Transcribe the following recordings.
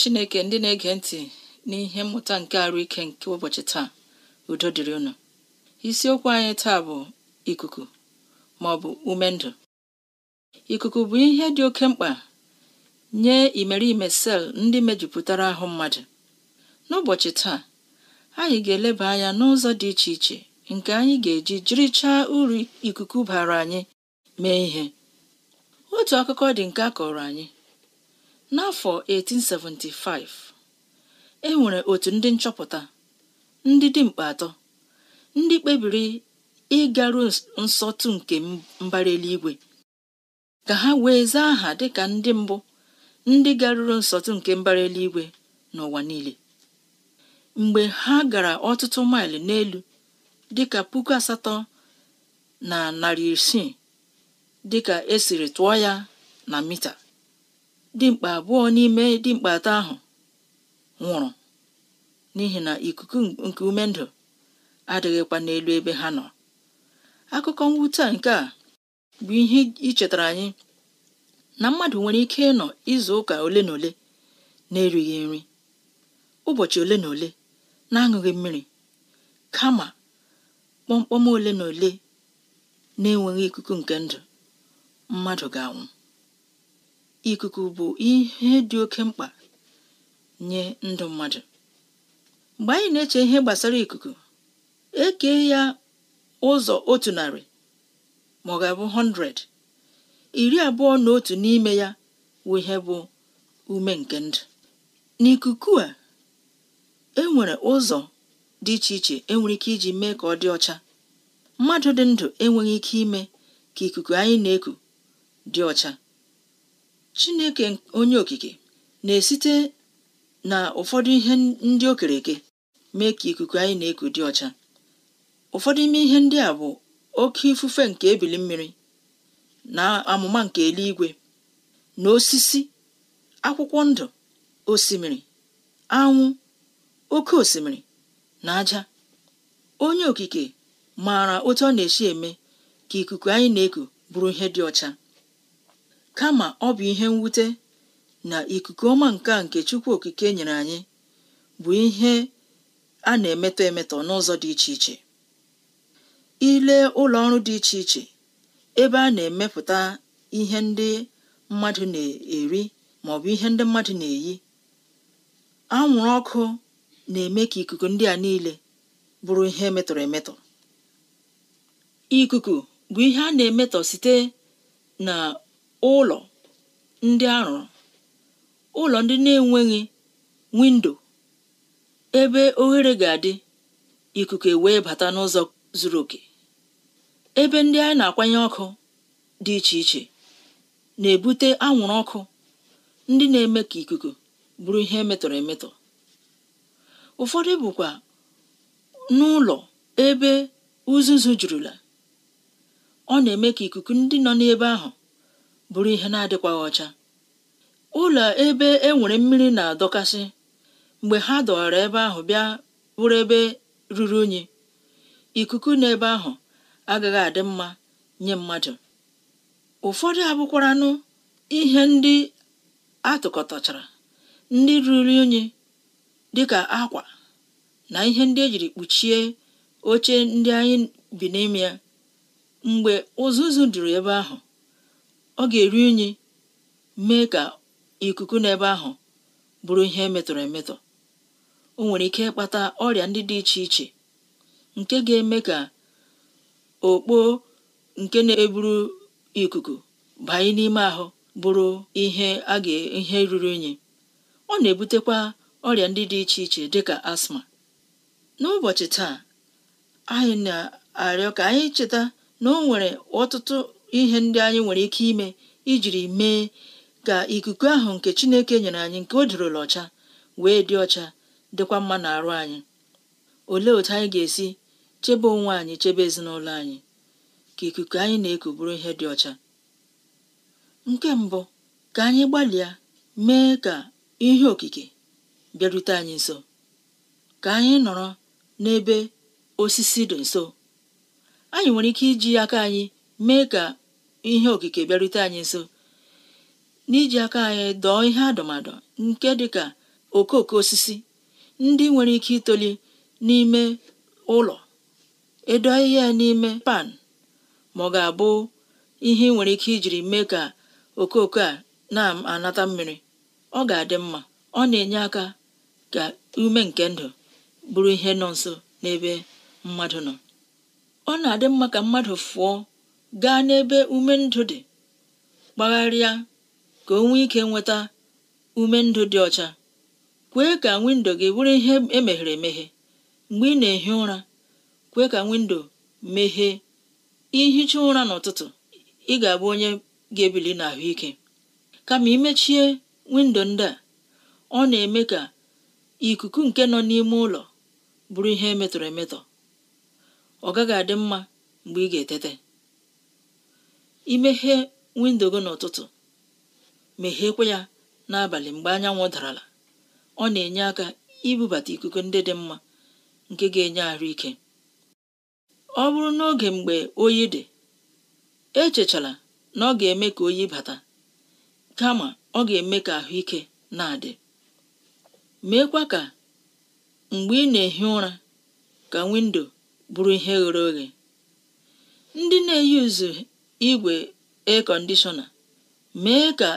chineke ndị na-ege ntị n'ihe mmụta nke arụ ike nke ụbọchị taa udo dịrị ụnụ, isiokwu anyị taa bụ ikuku ma ọ bụ ume ndụ ikuku bụ ihe dị oke mkpa nye imeriime sel ndị mejupụtara ahụ mmadụ n'ụbọchị taa anyị ga-eleba anya n'ụzọ dị iche iche nke anyị ga-eji jirichaa uru ikuku bara anyị mee ihe otu akụkọ dị nke a kọrọ anyị n'afọ 1875 e nwere otu ndị nchọpụta ndị dimkpa atọ ndị kpebiri ịgaru nsọtụ nke mbara eluigwe ka ha wee zaa aha dịka ndị mbụ ndị garuru nsọtụ nke mbara eluigwe n'ụwa niile mgbe ha gara ọtụtụ maịlụ n'elu dịka puku asatọ na narị isii dịka esiri tụọ ya na mita dimkpa abụọ n'ime dimkpa atọ ahụ nwụrụ n'ihi na ikuku nke ume ndụ adịghịkwa n'elu ebe ha nọ akụkọ mwute a nke a bụ ihe ichetara anyị na mmadụ nwere ike ịnọ izu ụka ole na ole na-erighị nri ụbọchị ole na ole na-aṅụghị mmiri kama kpọmkpọm ole na ole na-enweghị ikuku nke ndụ mmadụ ga-anwụ ikuku bụ ihe dị oke mkpa nye ndụ mmadụ mgbe anyị na-eche ihe gbasara ikuku eke ya ụzọ otu narị ma ọ ga-abụ 100 iri abụọ na otu n'ime ya wụ ihe bụ ume nke ndụ n'ikuku a enwere ụzọ dị iche iche enwere ike iji mee ka ọ dị ọcha mmadụ dị ndụ enweghị ike ime ka ikuku anyị na-eku dị ọcha chineke onye okike na-esite na ụfọdụ ihe ndị o eke mee ka ikuku anyị na-eku dị ọcha ụfọdụ ime ihe ndị a bụ oke ifufe nke ebili mmiri na amụma nke eluigwe na osisi akwụkwọ ndụ osimiri anwụ oke osimiri na aja onye okike maara otu ọ na-esi eme ka ikuku anyị na-eku bụrụ ihe dị ọcha kama ọ bụ ihe mwute na ikuku ọma nke nke Chukwu Okike nyere anyị bụ ihe a na-emetọ emetọ n'ụzọ dị iche iche ile ụlọ ọrụ dị iche iche ebe a na-emepụta ihe ndị mmadụ na-eri ma bụ ihe ndị mmadụ na-eyi anwụrụ ọkụ na-eme ka ikuku ndị a niile bụrụ ihe metọrọ emetọ ikuku bụ ihe a na-emetọ site na Ụlọ ndị rụrụ ụlọ ndị na-enweghị windo ebe oghere ga-adị ikuku wee bata n'ụzọ zuru oke ebe ndị anyị na-akwanye ọkụ dị iche iche na-ebute anwụrụ ọkụ ndị na-eme ka ikuku bụrụ ihe metọrọ emetọ ụfọdụ bụkwa n'ụlọ ebe uzuzu jurula ọ na-eme ka ikuku ndị nọ n'ebe ahụ bụrụ ihe na-adịkwaghị ọcha ụlọ ebe e nwere mmiri na-adọkasị mgbe ha dọwara ebe ahụ bịa bụrụ ebe ruru unyi ikuku n'ebe ahụ agaghị adị mma nye mmadụ ụfọdụ abụkwaranụ ihe ndị atụkọtachara ndị ruru unyi dịka akwa na ihe ndị ejiri kpuchie oche ndị anyị bi n'ime ya mgbe ụzụzụ duru ebe ahụ ọ ga-eru unyi mee ka ikuku n'ebe ahụ bụrụ ihe metọrọ emetọ o nwere ike ịkpata ọrịa ndị dị iche iche nke ga-eme ka okpo nke na-eburu ikuku banye n'ime ahụ bụrụ ihe a ga ihe ruru unyi ọ na-ebutekwa ọrịa ndị dị iche iche dịka asma n'ụbọchị taa anyị na-arịọ ka anyị cheta na o nwere ọtụtụ ihe ndị anyị nwere ike ime ijiri mee ka ikuku ahụ nke Chineke nyere anyị nke o dịrịla ọcha wee dị ọcha dịkwa mma n'arụ anyị olee otu anyị ga-esi chebe onwe anyị chebe ezinụlọ anyị ka ikuku anyị na-eku bụrụ ihe dị ọcha nke mbụ ka anyị gbalịa mee ka ihe okike bịarute anyị nso ka anyị nọrọ n'ebe osisi dị nso anyị nwere ike iji aka anyị mee ka ihe okike bịarute anyị nso n'iji aka anyị dọọ ihe adọmadọ nke dịka okooko osisi ndị nwere ike itoli n'ime ụlọ edo ahịhịa n'ime pan ma ọ ga-abụ ihe nwere ike ijiri mee ka okooko a na-anata mmiri ọ ga-adị mma ọ na-enye aka ka ume nke ndụ bụrụ ihe nọ nso n'ebe mmadụ nọ ọ na-adị mma ka mmadụ fụọ gaa n'ebe ume ndụ dị kpagharịa ka o nwee ike nweta ume ndụ dị ọcha kwee ka windo gị bụrụ ihe emeghere emeghe mgbe ị na-ehi ụra kwee ka windo meghee ihicha ụra n'ụtụtụ ị ga-abụ onye ga-ebili n'ahụike kama imechie windo ndị a ọ na-eme ka ikuku nke nọ n'ime ụlọ bụrụ ihe emetọrọ emetọ ọ gaghị adị mma mgbe ị ga-etete imeghe windo gị n'ụtụtụ megheekwe ya n'abalị mgbe anyanwụ darala ọ na-enye aka ibubata ikuku ndị dị mma nke ga-enye ahụike ọ bụrụ n'oge mgbe oyi dị echechala na ọ ga-eme ka oyi bata kama ọ ga-eme ka ahụike na-adị meekwa ka mgbe ị na-ehi ụra ka windo bụrụ ihe ghere oghe ndị na-eyuzu igwe ekọndishọna mee ka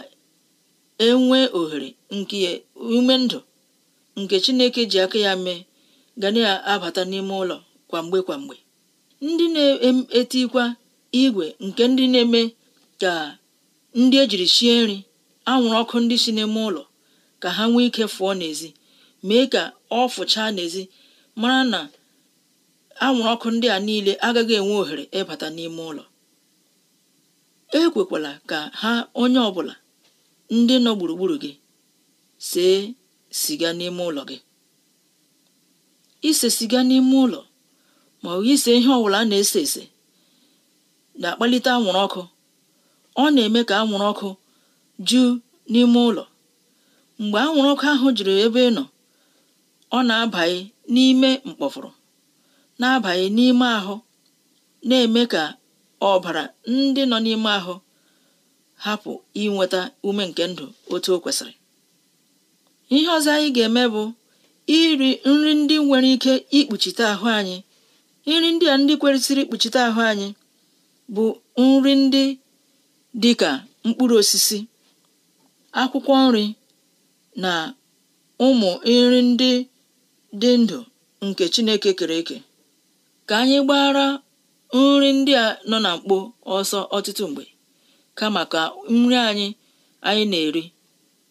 enwee ohere nke ume ndụ nke Chineke ji aka ya mee ga na-abata n'ime ụlọ kwamgbe kwamgbe ndị na-etikwa igwe nke ndị na-eme ka ndị ejiri sie nri anwụrụ ọkụ ndị si n'ime ụlọ ka ha nwee ike fụọ n'ezi mee ka ọ fụchaa n'ezi mara na anwụrụ ọkụ ndị a niile agaghị enwe ohere ịbata n'ime ụlọ ekwekwala ka ha onye ọbụla ndị nọ gburugburu gị see siga n'ime ụlọ gị ise siga n'ime ụlọ ma ọ bụ ise ihe ọbụla a na-ese ese na-akpalite anwụrụ ọkụ ọ na-eme ka anwụrụ ọkụ jụ n'ime ụlọ mgbe anwụrụ ọkụ ahụ juru ebe ị nọ ọ na-abanye n'ime mkpọfụrụ na-abanye n'ime ahụ na-eme ka ọbara ndị nọ n'ime ahụ hapụ inweta ume nke ndụ otu o kwesịrị ihe ọzọ anyị ga-eme bụ iri nri ndị nwere ike ikpuchite ahụ anyị nri ndị a ndị kwesịrị ikpuchite ahụ anyị bụ nri ndị dị ka mkpụrụ osisi akwụkwọ nri na ụmụ nri ndị dị ndụ nke Chineke kere eke ka anyị gbara nri ndị a nọ na mkpo ọsọ ọtụtụ mgbe kama ka nri anyị anyị na-eri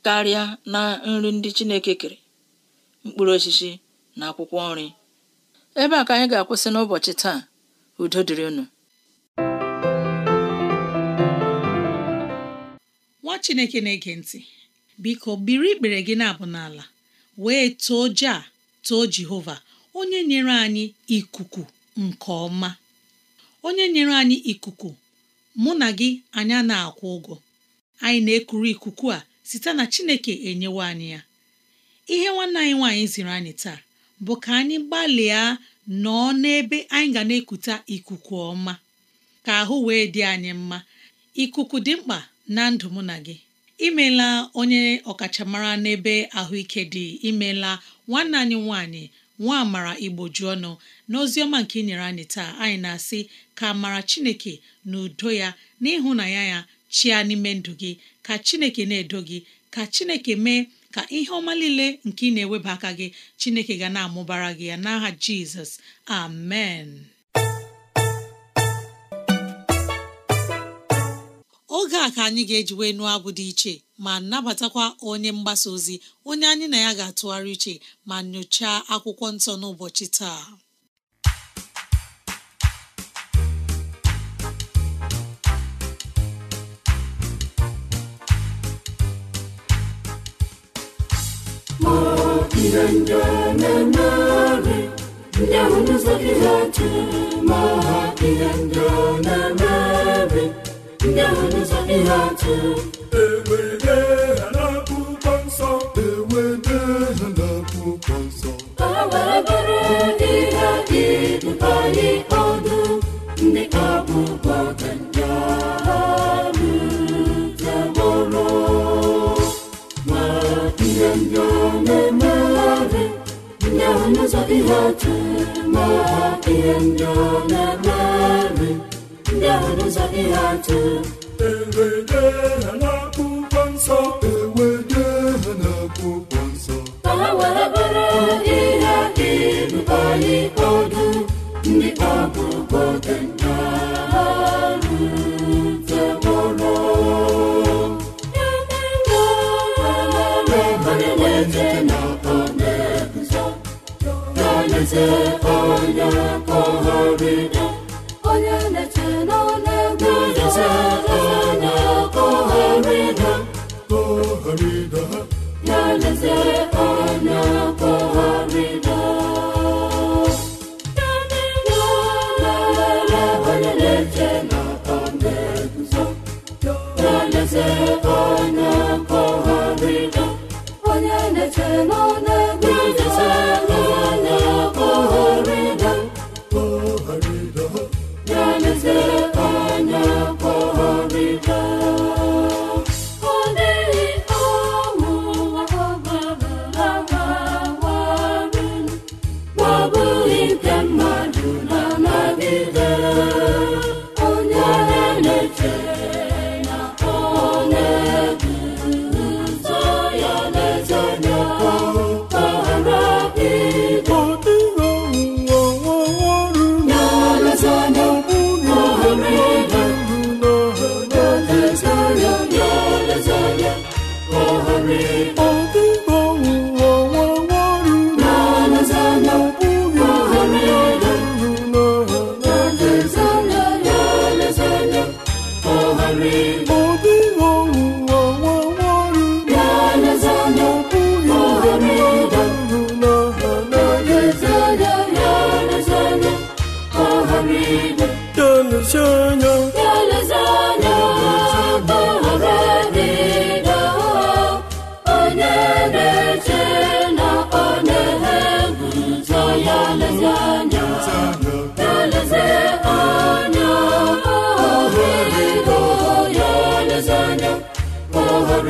karịa na nri ndị Chineke kere mkpụrụ osisi na akwụkwọ nri ebe a ka anyị ga-akwụsị n'ụbọchị taa udo dịrị unu nwa Chineke na-ege ntị biko biri ikpere gị na-abụ n'ala wee too ja too Jehova onye nyere anyị ikuku nke ọma onye nyere anyị ikuku mụ na gị anyị na-akwụ ụgwọ anyị na-ekuru ikuku a site na Chineke enyewe anyị ya ihe nwanne anyị nwaanyị ziri anyị taa bụ ka anyị gbalịa nọọ n'ebe anyị ga na ekute ikuku ọma ka ahụ wee dị anyị mma ikuku dị mkpa na ndụ mụ na gị imeela onye ọkachamara n'ebe ahụike dị imeela nwanne anyị nwanyị. nwa amara igbo ju ọnụ ọma nke ị nyere anyị taa anyị na-asị ka amara chineke na udo ya na ya ya chịa n'ime ndụ gị ka chineke na-edo gị ka chineke mee ka ihe ọma niile nke ị na-eweba aka gị chineke ga na-amụbara gị ya n'aha jizọs amen oge a ka anyị ga-eji wee nụọ abụ dị iche ma nabatakwa onye mgbasa ozi onye anyị na ya ga-atụgharị iche ma nyochaa akwụkwọ nsọ n'ụbọchị taa ma ihe ndị na ndị ahụ n'ụzọ ha ha nsọ ewede ha n'akwụkwọ nsọ bụrụ ndị ọdụ ndị akwụkwọ ma ihe ndị na-emegharị ndị ahụ n'ụzọ dị ma ihe ndị na-eme ya dị ha atụ n'akwụkwọ nsọ ewede ha n'akwụkwọ nsọ ka ha were bụrụ ihe ịbụba anyị ọdụ ndị ọ bụ nta na-ete na ọ na-eguzo na-eleze onye na-eche n'ọnụ egwu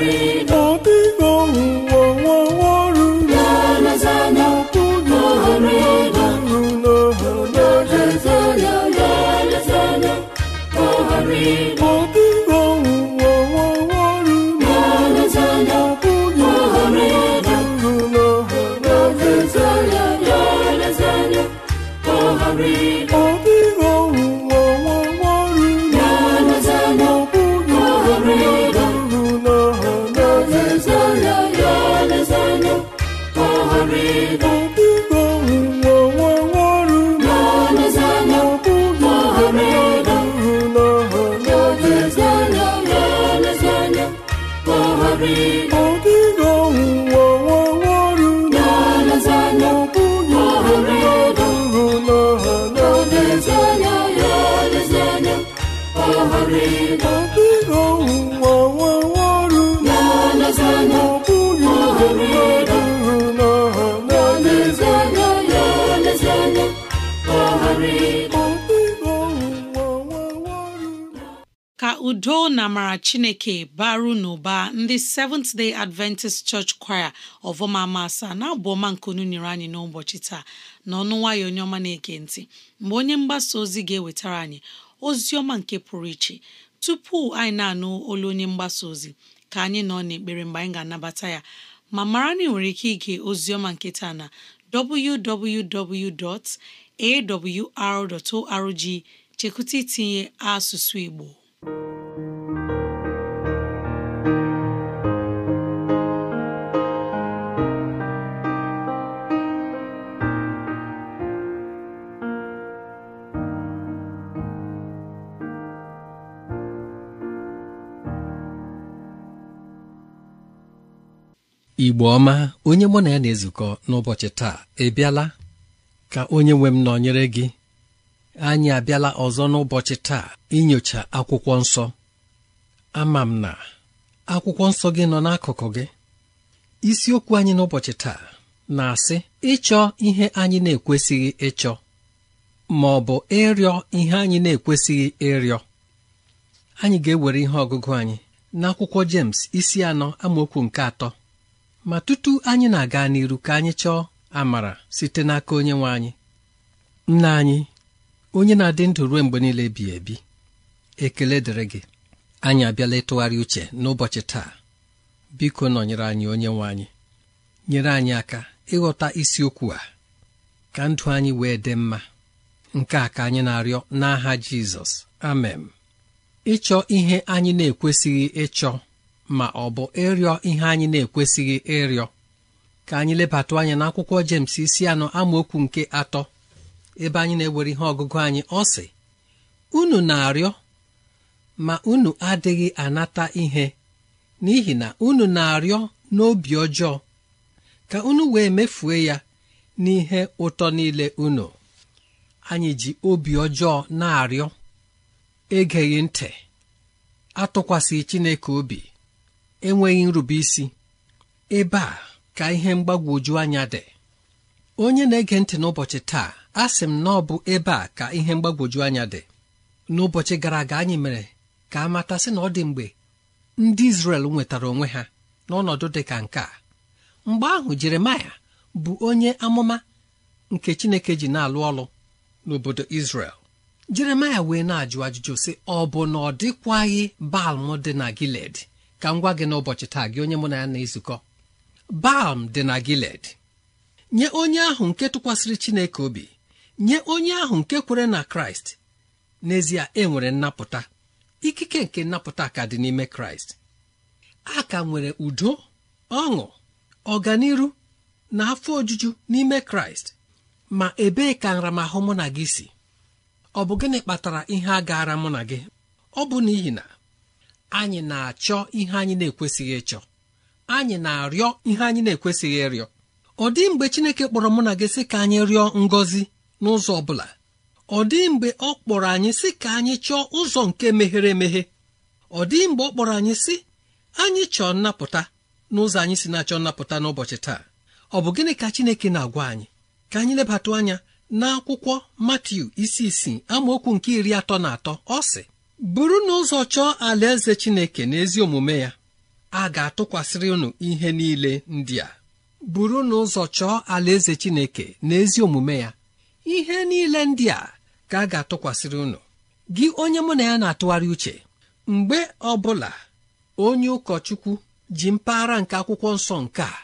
Glory, udo na amara chineke baru n'ụba ndị Seventh Day Adventist Church Choir ọvọmama asaa na-abụ ọma nkunu nyere anyị n'ụbọchị taa n'ọnụ nwayọ onye ọma na-ege ntị mgbe onye mgbasa ozi ga-ewetara anyị ozi ọma nke pụrụ iche tupu anyị na-anụ olu onye mgbasa ozi ka anyị nọ n'ekpere mgbe anyị ga-anabata ya ma mara na nwere ike ige ozi ọma nke taa na www.awr.org chekwụta itinye asụsụ Igbo igbo ọma onye mụ na ya na-ezukọ n'ụbọchị taa ebiala ka onye nwe m nọnyere gị anyị abịala ọzọ n'ụbọchị taa inyocha akwụkwọ nsọ ama m na akwụkwọ nsọ gị nọ n'akụkụ gị isiokwu anyị n'ụbọchị taa na-asị ịchọ ihe anyị na-ekwesịghị ịchọ ma ọ bụ ịrịọ ihe anyị na-ekwesịghị ịrịọ anyị ga-ewere ihe ọgụgụ anyị n'akwụkwọ James isi anọ amaokwu nke atọ ma tutu anyị na-aga n'iru ka anyị chọọ amara site n'aka onye nwe anyị nna anyị onye na-adị ndụ ruo mgbe niile bi ebi ekele dịrị gị anyị abịala ịtụgharị uche n'ụbọchị taa biko nọnyere anyị onye nwe anyị nyere anyị aka ịghọta isiokwu a ka ndụ anyị wee dị mma nke a ka anyị na-arịọ n'aha Jizọs amen ịchọ ihe anyị na-ekwesịghị ịchọ ma ọ bụ ịrịọ ihe anyị na-ekwesịghị ịrịọ ka anyị lebata anya n'akwụkwọ James isi anọ amaokwu nke atọ ebe anyị na-ewere ihe ọgụgụ anyị ọ sị unu na-arịọ ma unu adịghị anata ihe n'ihi na unu na-arịọ n'obi ọjọọ ka unu wee mefue ya n'ihe ụtọ niile unu anyị ji obi ọjọọ na-arịọ egeghị ntị atụkwasị Chineke obi enweghị nrube isi ebe a ka ihe mgbagwoju anya dị onye na-ege ntị n'ụbọchị taa a sị m na ọ bụ ebe a ka ihe mgbagwoju anya dị n'ụbọchị gara aga anyị mere ka a matasị na ọ dị mgbe ndị Izrel nwetara onwe ha n'ọnọdụ dị ka nke a mgbe ahụ Jeremaya bụ onye amụma nke Chineke ji na-alụ ọlụ n'obodo Izrel Jeremaya wee na-ajụ ajụjụ sị ọ bụ na ọ dịkwaghị Balm dị na giled ka m gwa gị n'ụbọchị taa gị onye mụ na ya na-ezukọ Balm dị na giled. nye onye ahụ nke tụkwasịrị Chineke obi nye onye ahụ nke kwere na kraịst n'ezie e nwere nnapụta ikike nke nnapụta ka dị n'ime kraịst a ka nwere udo ọṅụ ọganiru na afọ ojuju n'ime kraịst ma ebee ka nramahụ mụ na gị si ọ bụ gịnị kpatara ihe a gaara mụ na gị ọ bụ n'ihi na anyị na-achọ ihe anyị na-ekwesịghị ịchọ anyị na-arịọ ihe anyị na-ekwesịghị ịrịọ ọ dị mgbe Chineke kpọrọ mụ na gị sị ka anyị rịọ ngọzi n'ụzọ ọ bụla ọ dịghị mgbe ọ kpọrọ anyị sị ka anyị chọọ ụzọ nke meghere emeghe ọ dịghị mgbe ọ kpọrọ anyị sị anyị chọọ nnapụta n'ụzọ anyị si na-achọ nnapụta n'ụbọchị taa ọ bụ gịnị ka Chineke na-agwa anyị ka anyị lebata anya n'akwụkwọ Matiu isi isii amaokwu nke iri atọ na atọ ọ sị bụrụ na ụzọ chọọ alaeze Chineke na ezi omume ya a ga-atụkwasịrị unu ihe niile ndị a bụrụ na ụzọ chọọ alaeze Chineke na ezi omume ya ihe niile ndị a ka a ga-atụkwasịrị unu gị onye mụ na ya na-atụgharị uche mgbe ọ bụla onye ụkọchukwu ji mpaghara nke akwụkwọ nsọ nke a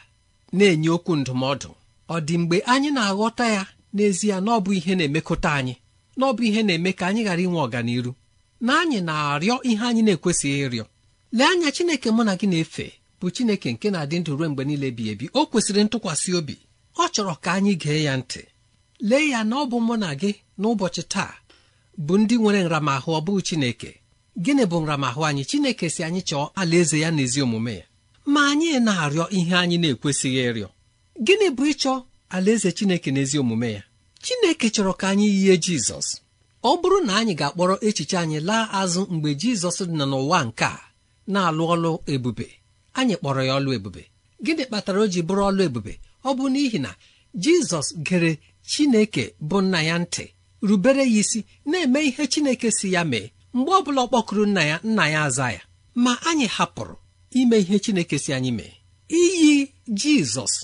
na-enye okwu ndụmọdụ ọ dị mgbe anyị na-aghọta ya n'ezie na ihe na-emekọta anyị na ihe na-eme ka anyị ghara inwe ọganiru na anyị na-arịọ ihe anyị na-ekwesịghị ịrịọ lee anya Chineke mụ na gị na-efe bụ Chineke nke na-adị ndụ ruo mgbe niile bi ebi o kwesịrị ntụkwasị obi ọ chọrọ ka anyị gee ya ntị lee ya na ọ bụ mụ na gị n'ụbọchị taa bụ ndị nwere nramahụ ọ bụghị Chineke gịnị bụ nramahụ anyị Chineke si anyị chọọ alaeze ya na ezi omume ya ma anyị na-arịọ ihe anyị na-ekwesịghị ịrịọ gịnị bụ ịchọ alaeze Chineke na ezi omume ya Chineke chọrọ ka anyị yie Jizọs ọ bụrụ na anyị ga-akpọrọ echiche anyị laa azụ mgbe Jizọs dị n'ụwa nke a na-alụ ọlụ ebube anyị kpọrọ ya ọlụ ebube gịnị kpatara o ji bụrụ ọlụ ebube ọ bụ n'ihi na Jizọs gere chineke bụ nna ya ntị rubere ya isi na-eme ihe chineke si ya mee mgbe ọ bụla ọ kpọkụrụ nna ya nna ya aza ya ma anyị hapụrụ ime ihe chineke si anyị mee iyi jizọs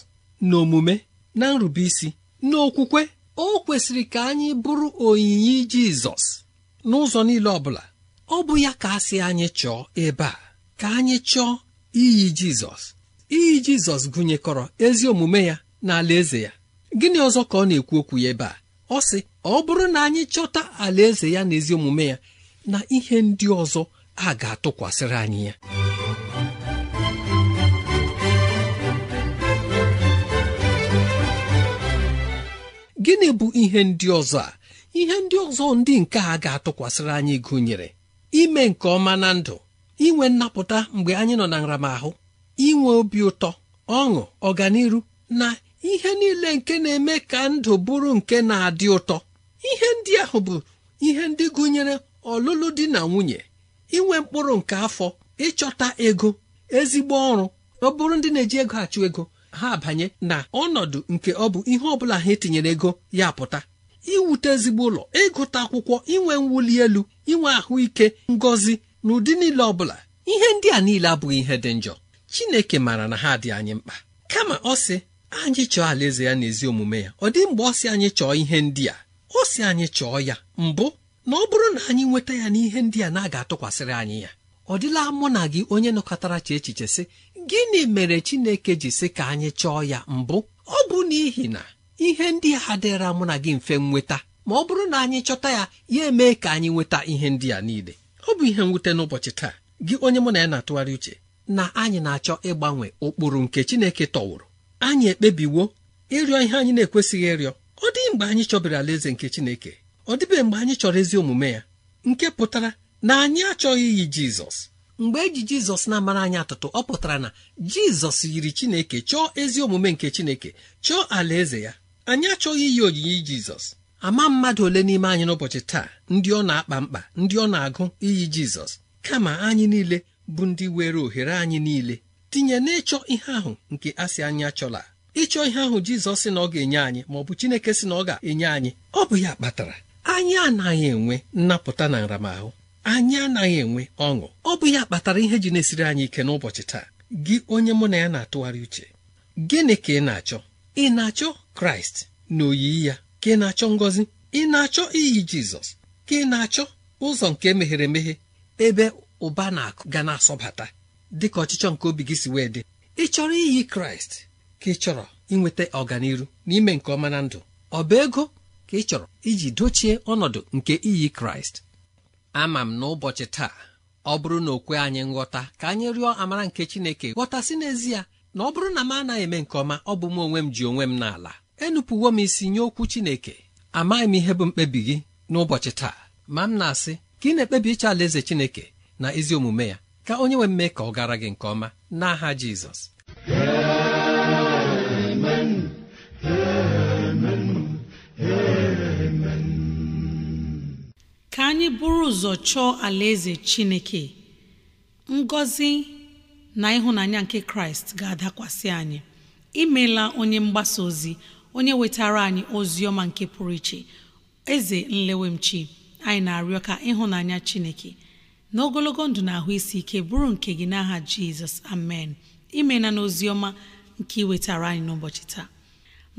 na omume na nrubeisi n'okwukwe o kwesịrị ka anyị bụrụ onyinye jizọs n'ụzọ niile ọ bụla ọ bụ ya ka a anyị chọọ ebe a ka anyị chọọ iyi jizọs iyi jizọs gụnyekọrọ ezi omume ya na alaeze ya gịnị ọzọ ka ọ na-ekwu okwu ya ebe a ọ sị ọ bụrụ na anyị chọta alaeze ya na ezi omume ya na ihe ndị ọzọ a ga-atụkwasịrị anyị ya gịnị bụ ihe ndị ọzọ a ihe ndị ọzọ ndị nke a ga-atụkwasịrị anyị gụnyere ime nke ọma na ndụ inwe nnapụta mgbe anyị nọ na nramahụ inwe obi ụtọ ọṅụ ọganiru na ihe niile nke na-eme ka ndụ bụrụ nke na-adị ụtọ ihe ndị ahụ bụ ihe ndị gụnyere ọlụlụ di na nwunye inwe mkpụrụ nke afọ ịchọta ego ezigbo ọrụ ọ bụrụ ndị na-eji ego achụ ego ha abanye na ọnọdụ nke ọ bụ ihe ọbụla ha etinyere ego ya pụta iwute ezigbo ụlọ ịgụta akwụkwọ inwe mwuli elu inwe ahụike ngọzi na ụdị niile ọbụla ihe ndị a niile abụghị ihe dị njọ Chineke maara na ha dị anyị mkpa kama ọ sị anyị chọọ alaeze ya n'ezi omume ya ọ dị mgbe ọ sị anyị chọọ ihe ndị a ọ sị anyị chọọ ya mbụ na ọ bụrụ na anyị nweta ya n'ihe ndị a na-aga atụkwasịrị anyị ya ọ dịla mụ na gị onye nọkọtara cha echiche sị gịnị mere Chineke ji sị ka anyị chọọ ya mbụ ọ bụ n'ihi na ihe ndị a dịra mụ na gị mfe nweta ma ọ bụrụ na anyị chọta ya ya emee ka anyị nweta ihe ndị a niile ọ bụ ihe mwute n'ụbọchị taa gị onye mụ na ya na-atụgharị uche na anyị na-achọ ịgbanwe ụkpụrụ nke Chineke tọwụrụ anyị ekpebiwo ịrịọ ihe anyị na-ekwesịghị ịrịọ ọ dịghị mgbe anyị chọbiri alaeze nke chineke ọ dịbeghị mgbe anyị chọrọ ezi omume ya nke pụtara na anyị achọghị iyi jizọs mgbe eji jizọs na-amara anyị atụtụ ọ pụtara na jizọs yiri chineke chọọ ezi omume nke chineke chọọ alaeze ya anyị achọghị iyi oyiyi jizọs ama mmadụ ole n'ime anyị n'ụbọchị taa ndị ọ na-akpa mkpa ndị ọ na-agụ iyi jizọs kama anyị niile bụ ndị were ohere anyị niile tinye n'ịchọ ihe ahụ nke asị anyị achọla ịchọ ihe ahụ jizọs si na ọ ga-enye anyị ma ọ bụ chineke si na ọ ga-enye anyị ọ bụ ya kpatara anyị anaghị enwe nnapụta na nramahụ anyị anaghị enwe ọṅụ ọ bụ ya kpatara ihe ji na-esiri anyị ike n'ụbọchị taa gị onye mụ na ya na-atụgharị uche gịnị ka ị na-achọ ị na-achọ kraịst na oyiyi ya ka ị na-achọ ngọzi ị na-achọ iyi jizọs ka ị na-achọ ụzọ nke meghere emeghe ebe ụba na-akụ ga na-asọbata dị ka ọchịchọ nke obi gị si wee dị ị chọrọ iyi kraịst ka ị chọrọ inweta ọganiru na ime nke ọma na ndụ ọ bụ ego ka ị chọrọ iji dochie ọnọdụ nke iyi kraịst ama m n'ụbọchị taa ọ bụrụ na okwe anyị nghọta ka anyị rịọ amara nke chineke ghọtasị n'ezie na ọ bụrụ na m anaghị eme nke ọma ọ bụ m onwe m ji onwe m n'ala enupụwo m isi nye okwu chineke amaghị m ihe bụ mkpebi gị n'ụbọchị taa ma m na-asị ka ị na-ekpebi ịchọ alaeze chineke na ezi omume ya ka onye nwe mme ka ọ gara gị nke ọma n'aha jizọs ka anyị buru ụzọ chọọ alaeze chineke ngọzi na ịhụnanya nke kraịst ga-adakwasị anyị imela onye mgbasa ozi onye wetara anyị ozi ọma nke pụrụ iche eze nlewemchi anyị na-arịọ ka ịhụnanya chineke n'ogologo ndụ na ahụ isi ike bụrụ nke gị n'aha jizọs amen imena n'ozi ọma nke iwetara anyị n'ụbọchị taa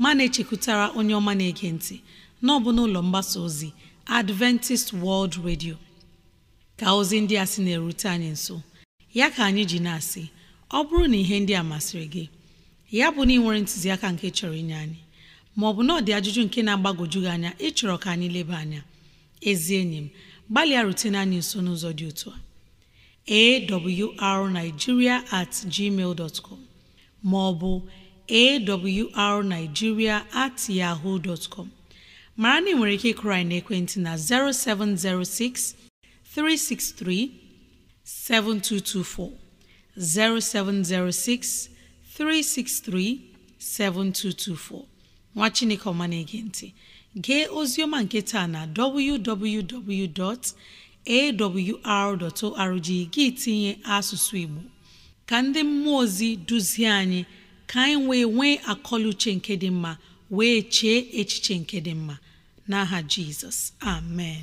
ma na-echekwutara onye ọma na-ege ntị na ọ n'ụlọ mgbasa ozi adventist world radio ka ozi ndị a sị na-erute anyị nso ya ka anyị ji na-asị ọ bụrụ na ihe ndị a masịrị gị ya bụ na ị nwere ntụziaka nke chọrọ inye anyị maọbụ na ọ dị ajụjụ nke na-agbagwoju gị anya ịchọrọ ka anyị leba anya ezi enyi m gbalịa rutene anyị nso n'ụzọ dị otu a awrnigeria at gmail dot com ma ọ bụ awrnigeria at yahoo dot mara na ị nwere ike ịkụrụ anyị n'ekwentị na 0706 363 7224 0706 363 7224 nwa Chineke ọma na-ege ntị gee ozioma nke taa na www.awr.org gị tinye asụsụ Igbo ka ndị mmụọ ozi duzie anyị ka anyị wee nwee akọluche nke dị mma wee chee echiche nke dị mma n'aha Jizọs amen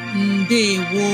ndewo